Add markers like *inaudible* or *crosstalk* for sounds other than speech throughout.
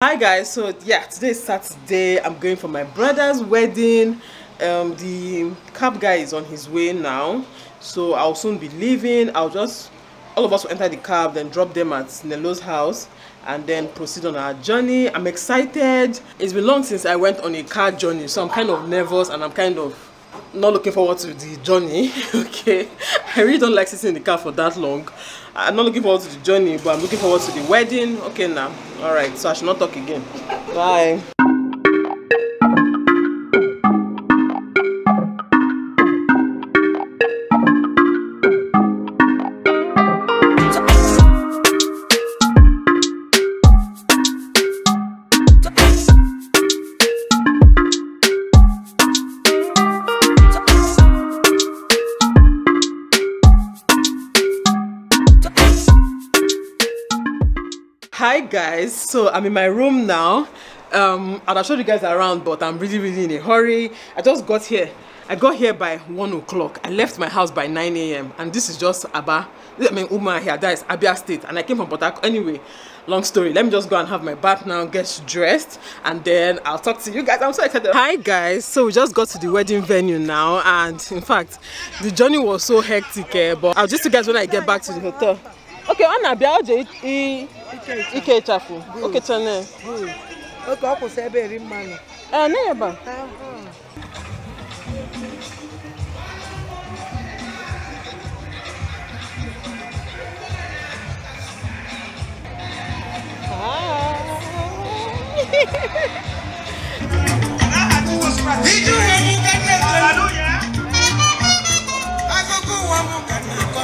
hi guys so yeah today is saturday i'm going for my brother's wedding um the cab guy is on his way now so i'll soon be leaving i'll just all of us will enter the cab then drop them at nelo's house and then proceed on our journey i'm excited it's been long since i went on a car journey so i'm kind of nervous and i'm kind of not looking forward to the journey *laughs* okay i really don't like sitting in the car for that long i'm not looking forward to the journey but i'm looking forward to the wedding okay now All right, so I should not talk again. Bye. So I'm in my room now. Um, and I showed you guys around, but I'm really, really in a hurry. I just got here. I got here by one o'clock. I left my house by 9 a.m. And this is just Aba. I mean, Uma here. That is Abia State. And I came from Port Harcourt. Anyway, long story. Let me just go and have my bath now, get dressed, and then I'll talk to you guys. I'm so excited. Hi, guys. So we just got to the wedding venue now. And in fact, the journey was so hectic. Eh, but I'll just tell you guys when I get back to the hotel. oke ọ na-abịa ọ jee ike ịchafụ okechana oke ọ kwụsị ebe eri mmanụ ee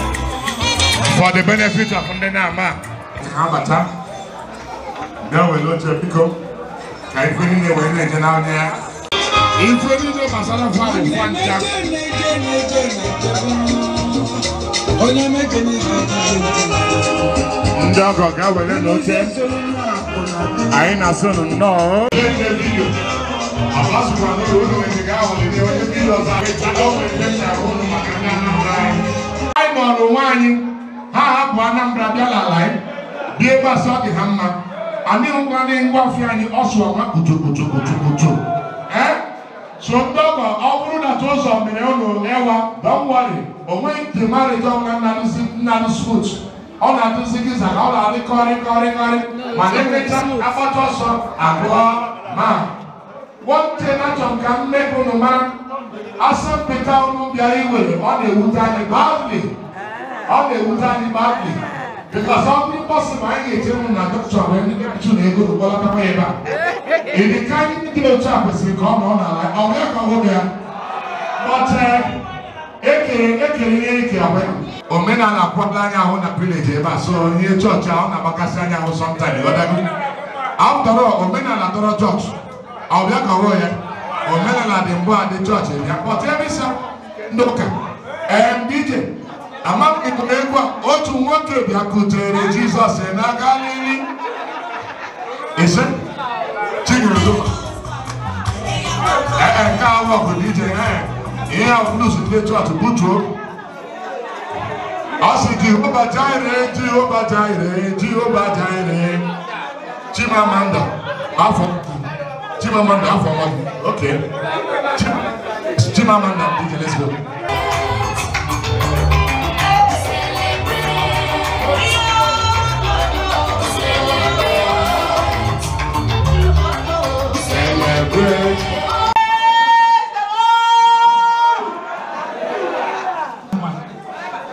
na *laughs* *laughs* for the benefit of ndị na-ama abata bịa were oche biko ka ife niile wee na-eje n'anya ya ife niile gbasara fabụ kwanja ndị ọgọ ga-ewere n'oche anyị na-asụ nnọọ anyị mụrụ nwaanyị ha hapụ Anambra bịa n'ala anyị bịa ebe ọ dị ha mma adịghịkwa ndị ngwa ọfụ anyị ọsụ ọma kpuchokpuchokpuchokpucho ee so ndị ọgọ ọ bụrụ na ụzọ mere ụlọ ewa dọwari onweghị primarịta ọnwa nnarụsut ọ na-adụzi giza na ọ na-adị kọrị kọrị kọrị ma na-emecha akpata ọsọ abụọ ma nwoke na-achọ ka mmebụ nụ mara asọmpịta ọnụ bịara iwere ọ na-ewute anyị baụli ọ ga-ewute anyị baakị bịkọsị ọ bụrụ mkpọsị ma anyị ga-eche ụnụ na dọkịta wee ndị mmebichu na ego rụgbọlatakwa ebe a ịdị ka anyị ndị dị otu a kwesịrị ka ọ nọ n'ala ọ bụghị ka ọhụrụ ya kpọchee ekere ekere ihe ike abụ omenala akwadoro anyị ahụ na vileji ebe a so ihe chọọchị ahụ na-agbakasị anyị ahụ sọmtaịm ọdago ahụ tọrọ omenala tọrọ chọọchị ọ bịa ka ọhụrụ ya omenala dị mbụ a dị chọọchị bịa kpọta ebe ịsa ndị ụka ndị ije ama ekwu a otu nwoke bịakutere jizọs n'aka n'ihi ise chinyere dụ ee nke ahụ ọgụ dije ee ihe ahụ blues ndị chọọchị butuo ọ sị jehova jaire jehova jaire jehova jaire chimamanda afọ chimamanda afọ ọgụ oke chimamanda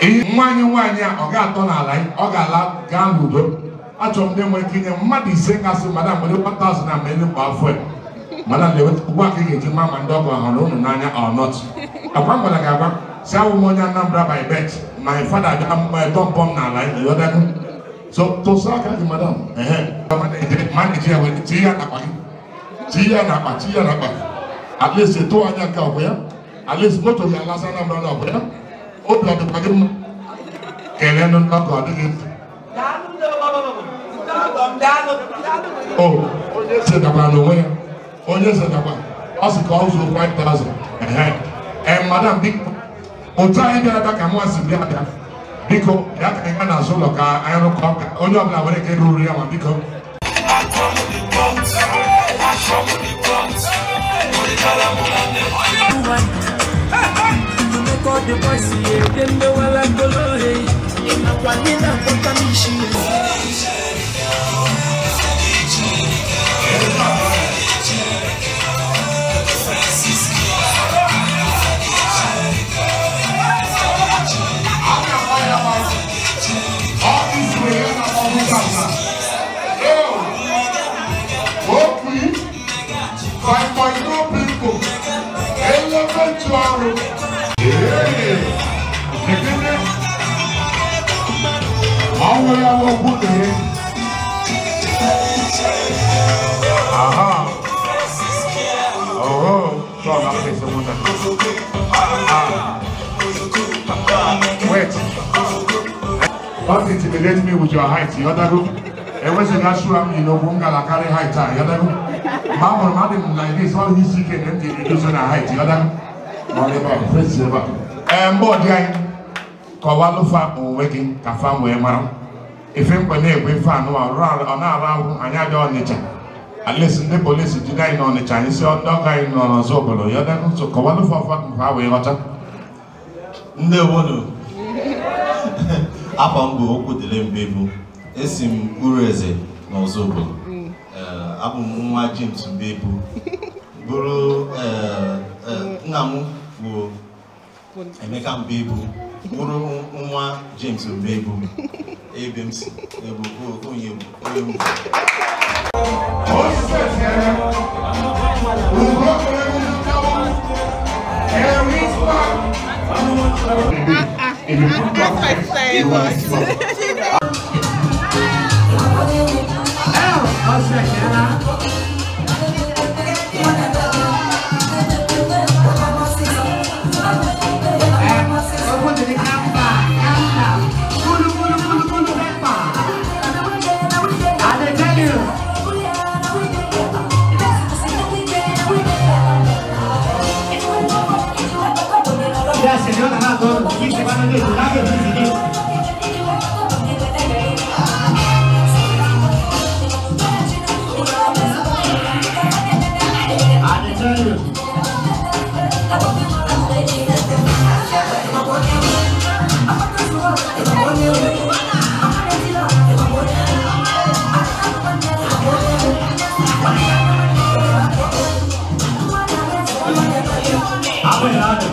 nwaanyị nwaanyị a ọ ga-atọ n'ala ọ ga-ala gaa n'udo achọrọ m ndị nwere ike inye mmadụ ise kasị madam nwere 1000 na mmeri kwa afọ ya madam ugbu a ka ị ga-eji ma ma ndị ọgọ hụrụ unu n'anya ọnọt akwa m gwara gị agwa si awụ m onye Anambra by birth my father bịa tọmpọm eh, n'ala yọdago so tụsa aka gị madam maneji ya were tie ya n'akpa gị tie ya n'akpa tie ya n'akpa at least tụọ anya nke ọ bụ ya at least moto ya alasa Anambra na ọ bụ ya obi ọ dịkwa gị mma kelee ndị mgbakọ ọ dịghị mfe o onye setakwa na onwe ya onye setakwa ọ sị ka ọ zụrụ 5000 ehe ee madam biko otu anyị bịara ebe ka mwa si bịa abịa biko ya ka anyị ga n'azụ ụlọ ka anyị rụkọ onye ọbụla nwere ike ruru ya ma biko I love the Lord. In a one in Aha. Oh, so I'm not facing one another. Wait. Don't intimidate me with your height, you know Ewe se na shura you know, bunga la carry height ah, you know Ma mo ma dem like this, all he's seeking can empty reduce na height, you know Whatever, praise the Lord. Em bo dia. Ko wa lo fa o wedding ka fa mara. ife mkpa na-egwe ife anụ ọ na-arụ ahụ anyị adị ọnịcha alesi ndị polisi jide anyị n'ọnịcha anyị si ndị ọka anyị nọ n'ọzọ obodo ya dị n'ụzọ kọwalụ fọfọ nke ha wee ghọta ndị obodo afọ mbụ okwu dịle mgbe bụ esi m uru eze n'ọzọ obodo eh, abụ m nwa James Mbebu bụrụ eh, eh, nna m bụ Emeka Mbebu mụrụ nwa James Omebu ebe m si ebu onye bụ onye mbụ That's my favorite. Obrigado.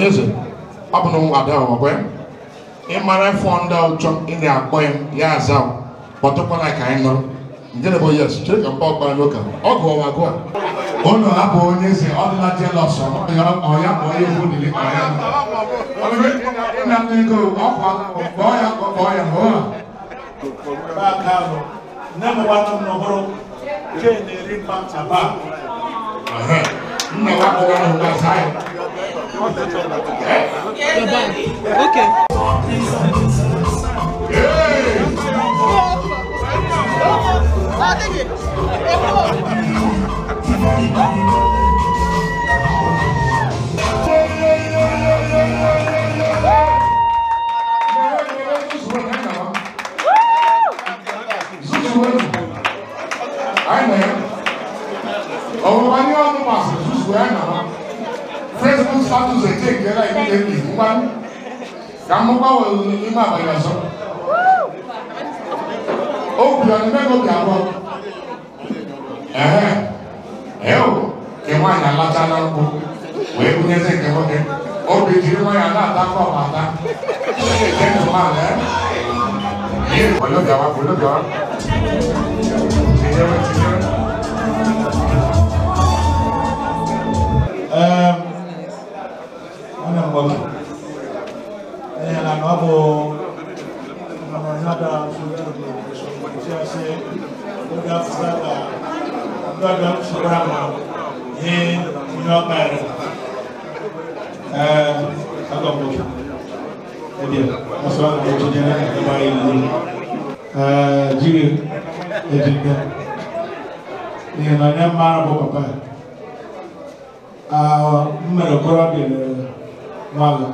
onye ze ọ bụ na nwa ada ọgwe ịmara ndị ọchọ ị na-akpọ ya ya aza kpọtụkwala ka anyị nụrụ nke na bụ yes chere ka mkpa ọkpara n'ụka ọ gụ ọwa gụa ụlọ ha onye eze ọdịla jelọs ọya ma onye egwu nili ọya nna m ego ọkwa kpọọ ya kpọọ ya ma ụwa nne m nwanne m nọbụrụ ke na-eri mkpa ntaba nna ya bụ ọrụ gbasa ya Okay. Oh, kuyana facebook status etengela ekudeni ubani kamuka imaba yaso okuyana meko byabo ehe ewo ke nwaanyị alacha na nkwụ wee bunyezi nke nwoke obi jiri nwa ya na-atakọ ọbata na-ete ndụ mmadụ ihe olobịawa olobịawa tinyere tinyere wannan gwamna ɗaya yana na abu na manzada su jirgin da su kwanci a sai ga fusata gbada su rama ne kuma ɓari akan gwamna ɗaya masu wani gwamna ne na gaba yi ne jirgin da jirgin ne na ne mara bu papa de m mere okorobịa lere nwala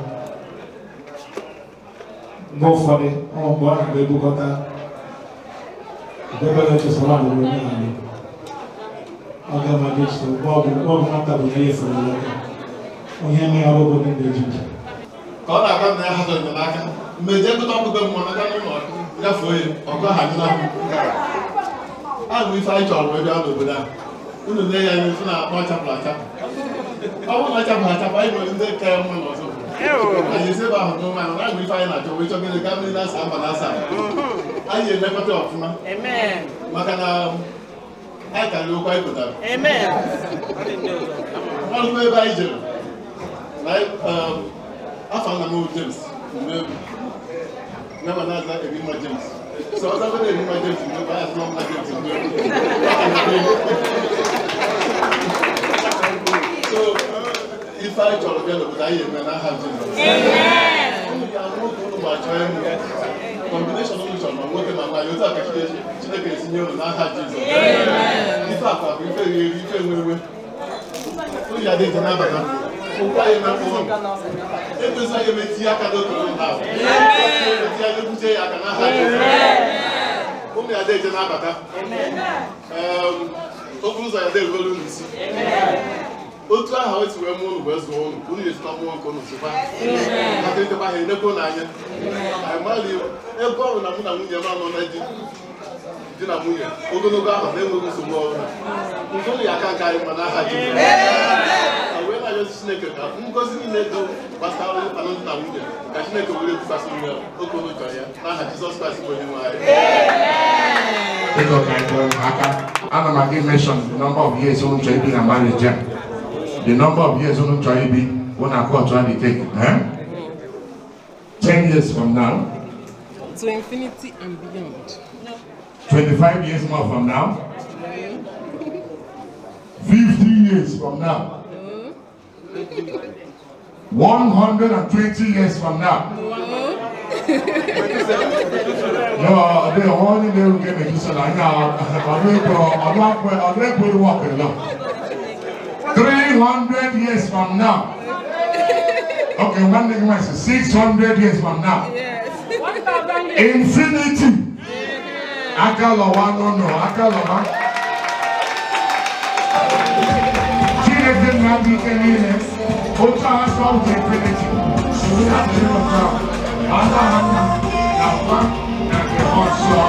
mgbe ụfọdụ ụmụ mgbe ahụ na-ebukọta debere echesara adịrị onye ahụ oge mmadụ iche mgbe ọbụla nwata bụ ihe fere aka onye mee ọrụ bụ ndị ejiji ka ọ na-agwa na ya hazụ enyemaka mmejie nkụta ọkpụkpe mmụọ n'aka n'ụlọ gafuo ya ọkụ ha nyụla a bụ ife anyị chọrọ ebe a n'obodo a unu na-enye ya ife na-akpọ chapụl achapụ ọwọ́ máa jàpá àjàpá ìmọ̀ ilé kẹ́ ọmọ ìmọ̀ tó. àyè sẹ́bà ọ̀dún máa ń ráàgbé fáyín àjọ wọ́n ìjọba ilé gámìnì lásà àbàlásà ayé lẹ́kọ́tọ̀ ọ̀fúnmá. maka na àkàrí okwa ìkọ̀tà. wọ́n lọ ebe anyị jere afọ nna m James mgbe na aza ebima James sọ ọzọ bẹ́ẹ̀ ebima James mgbe ọ ya sọ ọmọ James mgbe ọ ya sọ ọmọ James. ife anyị chọrọ bịa n'obodo anyị eme na Jizọs unu ga-arụ oge unu ma chọrọ ma nwoke ma nwaanyị otu a ka Chineke n'aha Jizọs ife akwa bụ ife ife nwewe okwu mkpụrụ edozi eme aka n'okoro ha anya ya aka n'aha ụmụ ya otu aha o si wee mụọ unu wee zụọ unu ka unu ga-esita mụọ nke unu sụba aka nkeba ha enyekwa unu anya anyị mara iwu ebe ọ bụ na mụ na nwunye m anọ na di di na nwunye ogologo ahụ na-enweghị nsogbu ọbụla nke unu ga-aka nke anyị mana aha ji wee na-arịọzi chineke ka ngozi niile dị gbasara onye mkpana dị na nwunye ka chineke were ekwukwasị nwe oke unu chọrọ ya n'aha jizọs kraịst bụ onye nwe anyị Ana m aga imeshọn nọmba ọ bụ ihe ezi ụjọ ibi na marriage the number of years wọn tọ́ ayé bi wọn náà kọ́ to á di take eh? ten years from now. to infinity and beyond. twenty-five years more from now. fifty years from now. one hundred and twenty years from now. no, they only they will get me just like now. I'm not going I'm not going to work alone. 300 years from now. Okay, one thing I say, 600 years from now. Infinity. Akalawa, no, no, Akalawa. Children now became illness. Otra has found infinity. She will have to know now. Mother Hannah, Napa, Nake Hotso.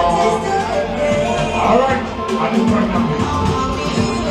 All right, I do pregnant.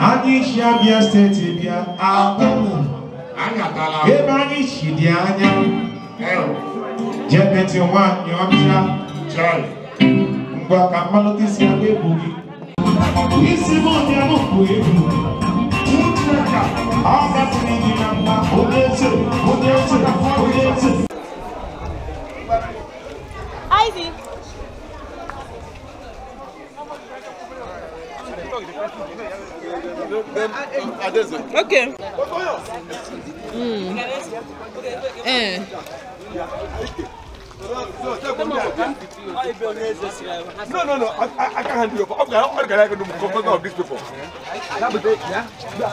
anyị si abịa steeti bịa akpụmụ ebe anyị si dị anya jebeti nwanyị ọcha ngwa ka mmalite isi abịa egwu gị isi m ọbịa m bụ egwu ọ gasịrị gị na mma onye eze onye eze onye eze Ivy. Okay. Mm. Eh. No, no, no. I, I, I can't handle you. How can I do confession of these people? Eh.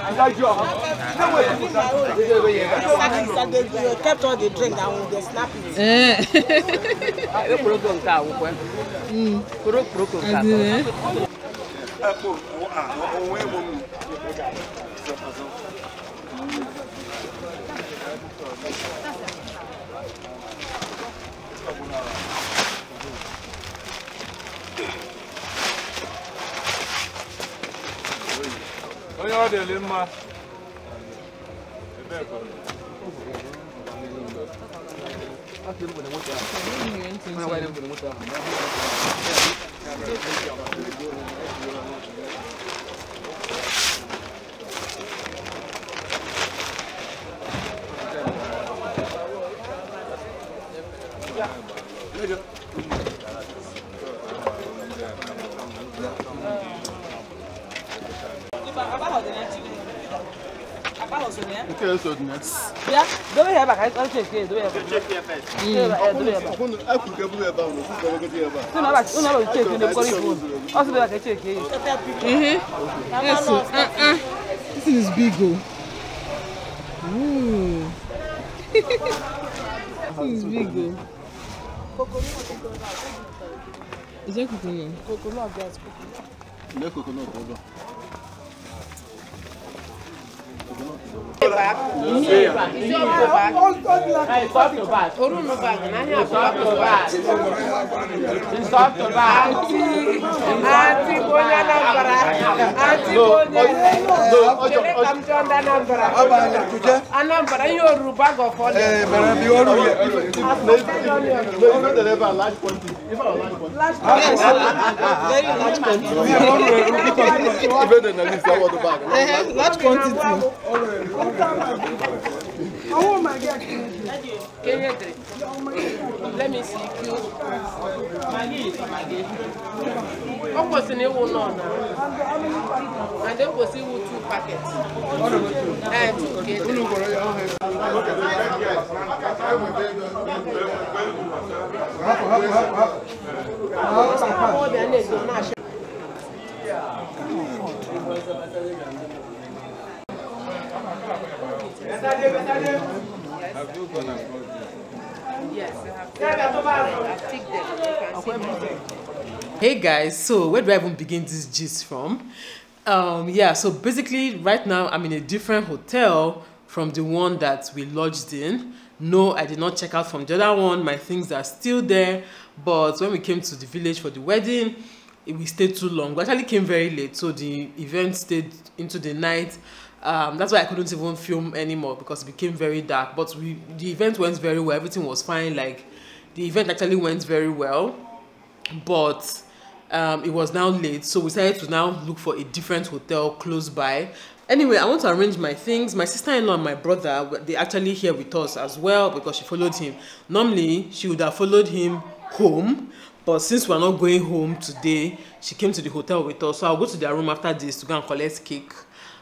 *laughs* You kept all the drink and we Hmm. snap it. Eh. Mm ẹ̀kọ́ ohun èèwọ̀ mi. onye ọ dịrị mma ebe ẹ̀kọ́ mi. Aku belum boleh mutar. Aku belum boleh mutar. 那个。yeah? Okay, so yes. Yeah, do we have a house? here. Do we have a house? here first. Do we have a house? I could get a house. I could get a house. No, you check in the police phone. Also, do I can check here? Yes, uh, uh. This is big, oh. Ooh. *laughs* this is big, oh. Is that coconut? Coconut, yes, coconut. No coconut, hold on. Orunu bag, nanya abubakar bag. Nsọtụ bag. Ati ati bonye Anambra. Ati bonye. Chere ka m jụọ ndị Anambra. Anambra ihe oru bag of ọlị. Ee, mere bi oru ya. Last place. Very large quantity. Large quantity. I Let me see you. Maggie is Maggie. What was in And then was it two packets? Eh, two Hey guys, so where do I even begin this gist from? Um, yeah, so basically right now I'm in a different hotel from the one that we lodged in. No, I did not check out from the other one. My things are still there. But when we came to the village for the wedding, we stayed too long. We actually came very late, so the event stayed into the night um, that's why I couldn't even film anymore because it became very dark. But we, the event went very well. Everything was fine. Like the event actually went very well, but um, it was now late, so we decided to now look for a different hotel close by. Anyway, I want to arrange my things. My sister-in-law and my brother, they actually here with us as well because she followed him. Normally, she would have followed him home, but since we're not going home today, she came to the hotel with us. So I'll go to their room after this to go and collect cake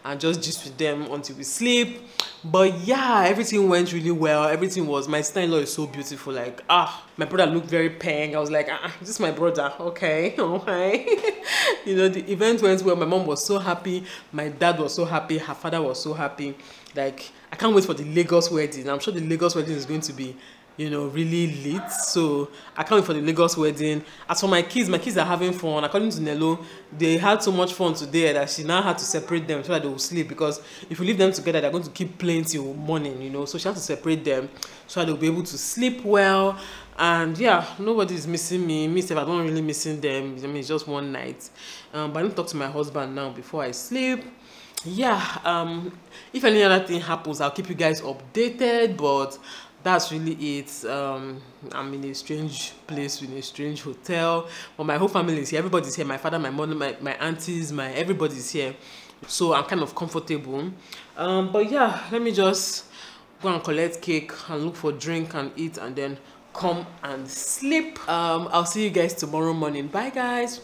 and just gist with them until we sleep but yeah everything went really well everything was my sister-in-law is so beautiful like ah my brother looked very pink i was like ah, ah this is my brother okay okay *laughs* *laughs* you know the event went well my mom was so happy my dad was so happy her father was so happy like i can't wait for the lagos wedding i'm sure the lagos wedding is going to be you know really lit so i can't wait for the lagos wedding as for my kids my kids are having fun according to Nelo, they had so much fun today that she now had to separate them so that they will sleep because if you leave them together they're going to keep playing till morning you know so she had to separate them so that they'll be able to sleep well and yeah nobody is missing me me sef i don't really missing them i mean it's just one night um, but i don't talk to my husband now before i sleep yeah um if any other thing happens i'll keep you guys updated but that's really it um i'm in a strange place in a strange hotel but my whole family is here everybody's here my father my mother my, my aunties my everybody's here so i'm kind of comfortable um but yeah let me just go and collect cake and look for drink and eat and then come and sleep um i'll see you guys tomorrow morning bye guys